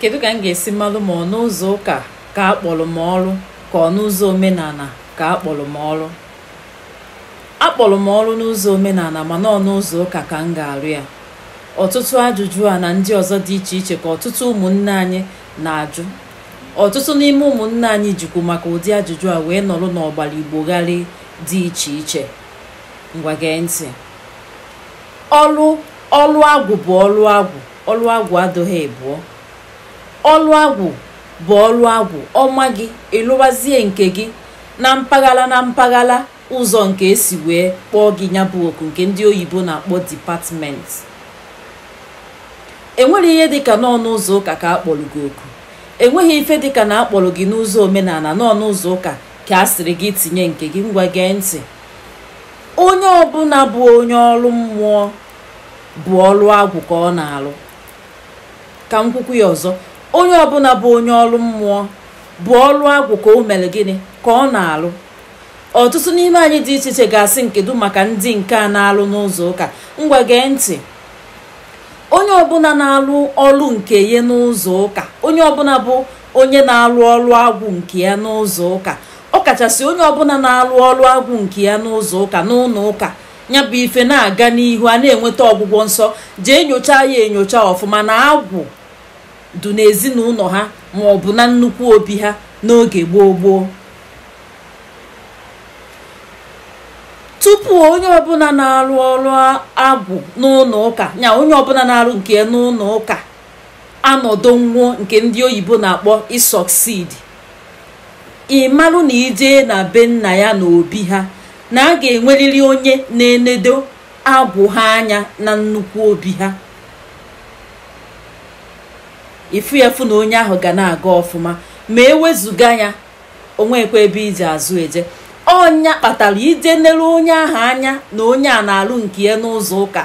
kedu ka m ga-esi malụ ma ọ n'ụzọ ụka ka a kpọrọ m ọrụ ka ọ n'ụzọ omenala ka a kpọrọ m ọrụ m ọrụ n'ụzọ omenala mana ọ n'ụzọ ụka ka m ga-arụ ya ọtụtụ ajụjụ a na ndị ọzọ dị iche iche ka ọtụtụ ụmụnne anyị na-ajụ ọtụtụ n'ime ụmụnne anyị jikwu maka ụdị ajụjụ a wee nọrụ n'ọgbara gharị dị iche iche ngwa gee ntị ọlụ ọlụ agwụ bụ ọlụ agwụ ọlụ agwụ adịghị ebuo ọlụ agwụ bụ ọlụ agwụ ọma gị ịlụwazie nke gị na mpaghara na mpaghara ụzọ nke esi wee kpọọ gị nyabụ oku nke ndị oyibo na-akpọ dipatmenti enwere ihe dịka n'ọnụ ụzọ ụka ka a kpọrọ gị oku enweghị ife dịka na akpọrọ gị n'ụzọ omenala n'ọnụ ụzọ ụka ka a sịrị gị tinye nke gị ngwa gee ntị onye ọbụla bụ onye ọrụ mmụọ bụ ọlụ agwụ ka ọ na alụ ka m kwukwu ya ọzọ onye ọbụla bụ onye ọrụ mmụọ bụ ọrụ agwụ ka o mere gịnị ka ọ na-alụ ọtụtụ n'ime anyị dị iche iche ga-asị nkedu maka ndị nke a na-alụ n'ụzọ ụka ngwa gee ntị onye ọbụla na-alụ ọrụ nke ya n'ụzọ ụka onye ọbụla bụ onye na-alụ ọrụ agwụ nke ya n'ụzọ ụka ọ kachasị onye ọbụla na-alụ ọrụ agwụ nke ya n'ụzọ ụka n'ụlọ ụka ya bụ ife na-aga n'ihu a na-enweta ọgwụgwọ nsọ jee nyochaa ya enyocha ọfụma na agwụ du n'ezinụlọ ha ma ọ bụ na nnukwu obi ha n'oge gboo gboo tupu onye ọbụla na-arụ ọrụ agwụ n'ụlọ ụka nya onye ọbụla na-arụ nke n'ụlọ ụka anọdụ nwụọ nke ndị oyibo na-akpọ ịsọksidi ịmalụ na ijee na be nna ya na obi ha na a ga-enwerịrị onye na-enedo agwụ ha anya na nnukwu obi ha ifu ya na onye ahụ ga na-aga ọfụma ma ewezuga ya onwekwe ebe iji azụ eje ọnya kpatara ije nere onye ahụ anya na onye a na-alụ nke ya n'ụzọ ụka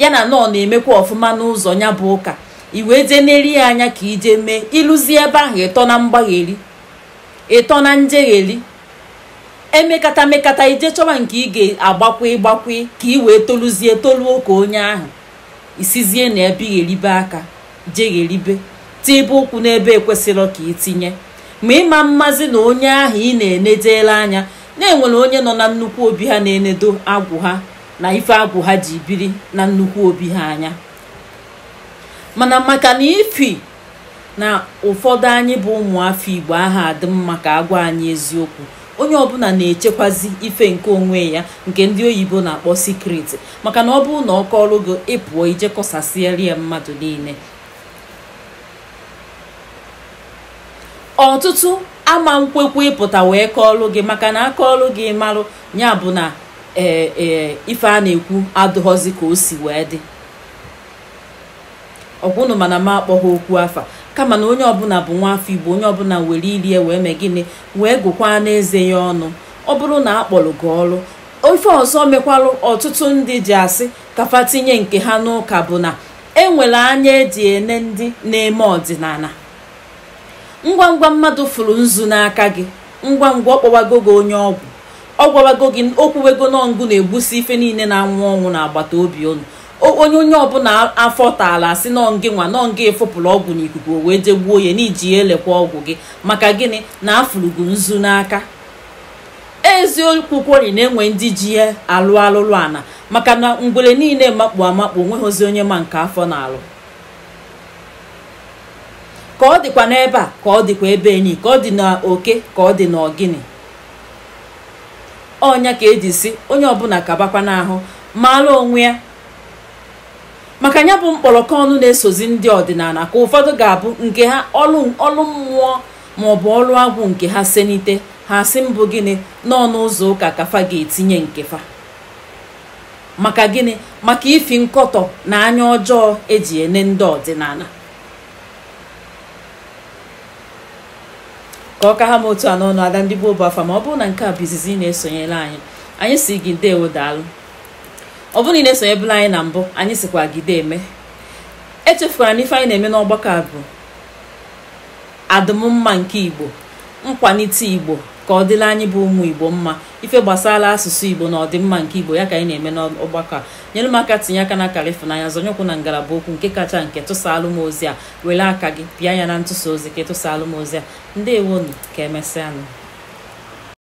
ya na nọọ na-emekwa ọfụma n'ụzọ ya bụ ụka iwee je neri ya anya ka ije mee ịlụzi ebe ahụ ịtọ na mgbagheri ịtọ na njegheri emekata mekata ije chọba nke ị ga-agbakwe gbakwe ka ị wee toluzie toluo ka onye ahụ isizie na ebe eribe aka jegheribe tibe ụkwụ n'ebe ekwesịrị ka itinye ma ịma mmazi na onye ahụ ị na enedela anya na-enwere onye nọ na nnukwu obi ha na-enedo agwụ ha na ife agwụ ha ji biri na nnukwu obi ha anya mana maka na ifi na ụfọdụ anyị bụ ụmụafọ igbo aha adị mma ka agwa anyị eziokwu onye ọbụla na-echekwazi ife nke onwe ya nke ndị oyibo na-akpọ sikret maka na ọ bụrụ na ọ kọrọ gị ịpụọ ije ya mmadụ niile ọtụtụ ama nkwekwe ịpụta wee kọọlụ gị maka na akọọlụ gị marụ ya bụ na ee e, ife a na-ekwu adụghọzi ka o si wee dị ọgwụnụ mana m akpọghị okwu afa kama na onye ọbụla bụ nwa afọ igbo onye ọbụla were irie wee mee gịnị wee gụkwaa n'eze ya ọnụ ọ bụrụ na akpọrọ gị ọrụ ofe ọzọ mekwarụ ọtụtụ ndị ji asị kafa tinye nke ha n'ụka bụ na enwere anya eji ene ndị na-eme ọdịnala ngwa ngwa mmadụ fụrụ nzu n'aka gị ngwa ngwa ọ gị onye ọgwụ ọ gwawago gị okwuwego nọngụ na-egbusi ife niile na-anwụ ọnwụ agbata obi unu onye onye ọbụla afọ taala asị nọngị nwa nọngị efopụrụ ọgwụ n'ikuku o wee je gbuo ya n'iji ya elekwa ọgwụ gị maka gịnị na afụrụgo nzu n'aka eziokwu na-enwe ndị ji ya alụ alụlụ ana maka na ngwere niile makpu amakpu onweghịzi onye ma nke afọ na-alụ ka ọ dịkwa n'ebe a ka ọ dịkwa ebe enyi ka ọ dị n'oke ka ọ dị n'ọgịnị ọnya ka eji si onye ọbụla kabakwa n'ahụ maara onwe ya maka ya bụ mkpọrọkọ ọnụ na-esozi ndị ọdịnala ka ụfọdụ ga-abụ nke ha ọlụ ọlụ mmụọ bụ ọrụ agwụ nke ha senite ha si mbụ gịnị n'ọnụ ụzọ ụka kafa ga-etinye nkefa maka gịnị maka ifi nkọtọ na anya ọjọọ eji ene ndị ọdịnala ka ọ ka ha m otu a n'ọnụ ada ndị gboo bụ afa ma ọ bụrụ na nke a bụ izizi ị na esonyela anyị anyị si gị ndewo daalụ ọ bụrụ na ị na-esonyebụla anyị na mbụ anyị sikwa gide eme echefukwara na ife anyị na-eme n'ọgbakọ a bụ adụmmma nke igbo nkwalite igbo ka ọ dịla anyị bụ ụmụ igbo mma ife gbasara asụsụ igbo na ọdịmma nke igbo ya ka anyị na-eme n'ọgbakọ a nyere m aka tinye aka na kalifụnanya zọnyekwu na ngalaba okwu nke kacha nke tụsa alụmọzi a were aka gị bịa ya na ntụsa ozi ka tụsalụ ozi a ndewonu ka emesịanụ